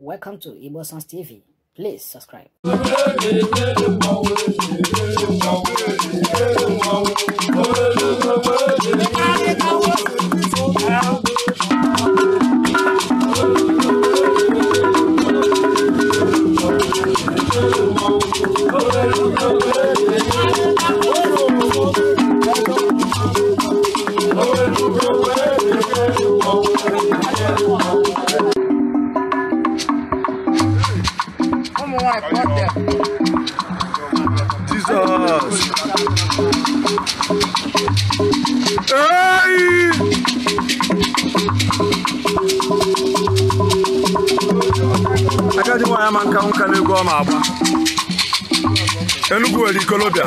Welcome to Igbo Sons TV. Please subscribe. I caught them. Jesus. Hey! Agadi nwaanyị ama nka nka on, egwu ọma agba Enugu nwere ikolobịa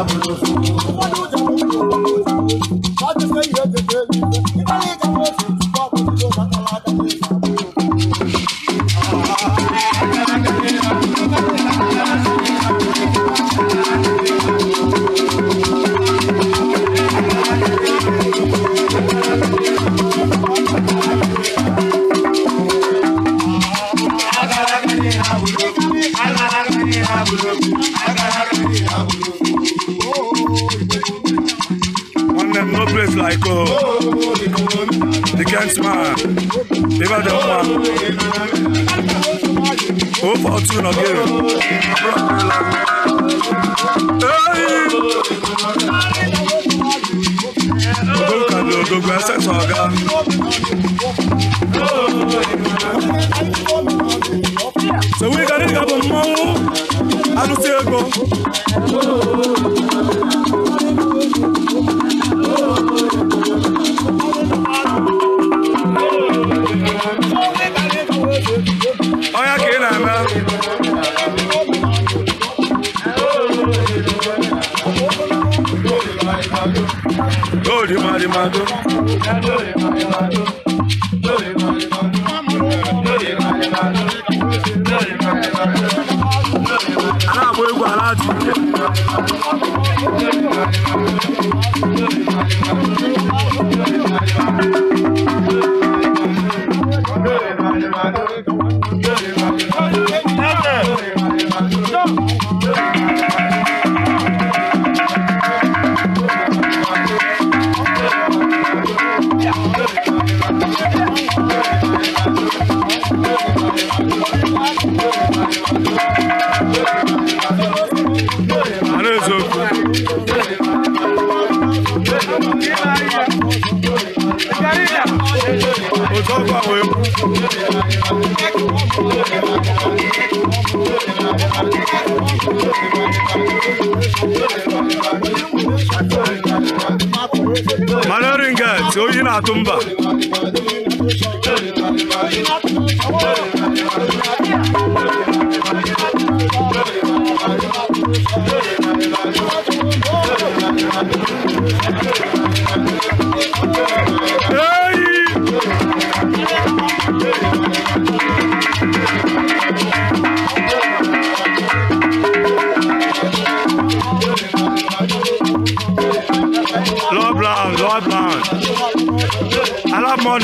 abụrụ no place like oh. The Kent man, Never David one. Oh, for two again. Hey! Look at the Dogba Sexo Aga. So we got it, got the money. I don't see it go. lórí màrìmàdó. lórí màrìmàdó. lórí màrìmàdó. lórí màrìmàdó. lórí màrìmàdó. aláàbò egbò aláàtì. lórí màrìmàdó. lórí màrìmàdó. Malorin Gats, Oyinatun tumba.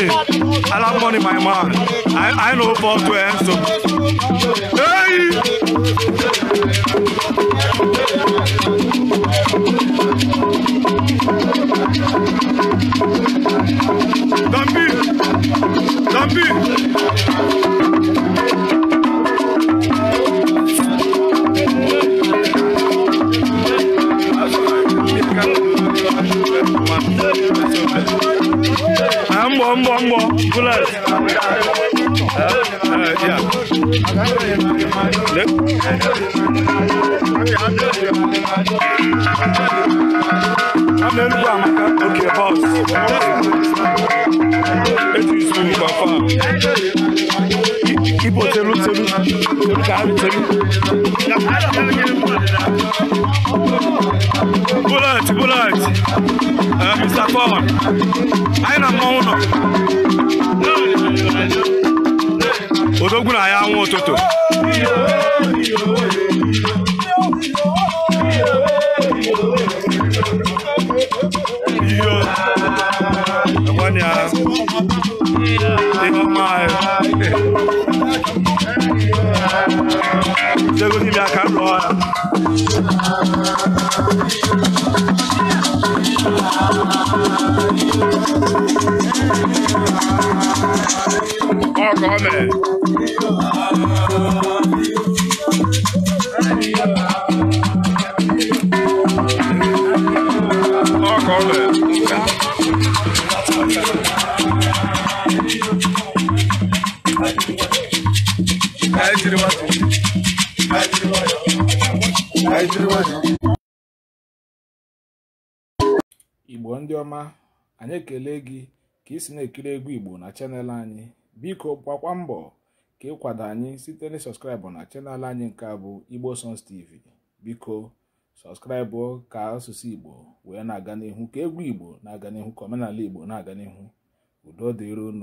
money. I love money, my man. I, I know for 12, so. Hey! Mbo, mbo, mbo. Kulaj. Yeah. Look. Yeah. amelubu amaka oke bọs etu isu ngwa fam ibo telu telu telu ka arụ telu bullet bullet mr fon anyị na mmanwụ nọ odogwu na ya anwụ ụtụtụ chego de minha casa igbo ndị ọma anyị ekele gị ka ị si na-ekiri egwu igbo na chanel anyị biko gbakwa mbọ ka ịkwado anyị site na sọskraịbụ na chanel anyị nke a bụ igbo songs tv biko sọskraịbụ ka asụsụ igbo wee na-aga n'ihu ka egwu igbo na-aga n'ihu ka omenala igbo na-aga n'ihu udo dịron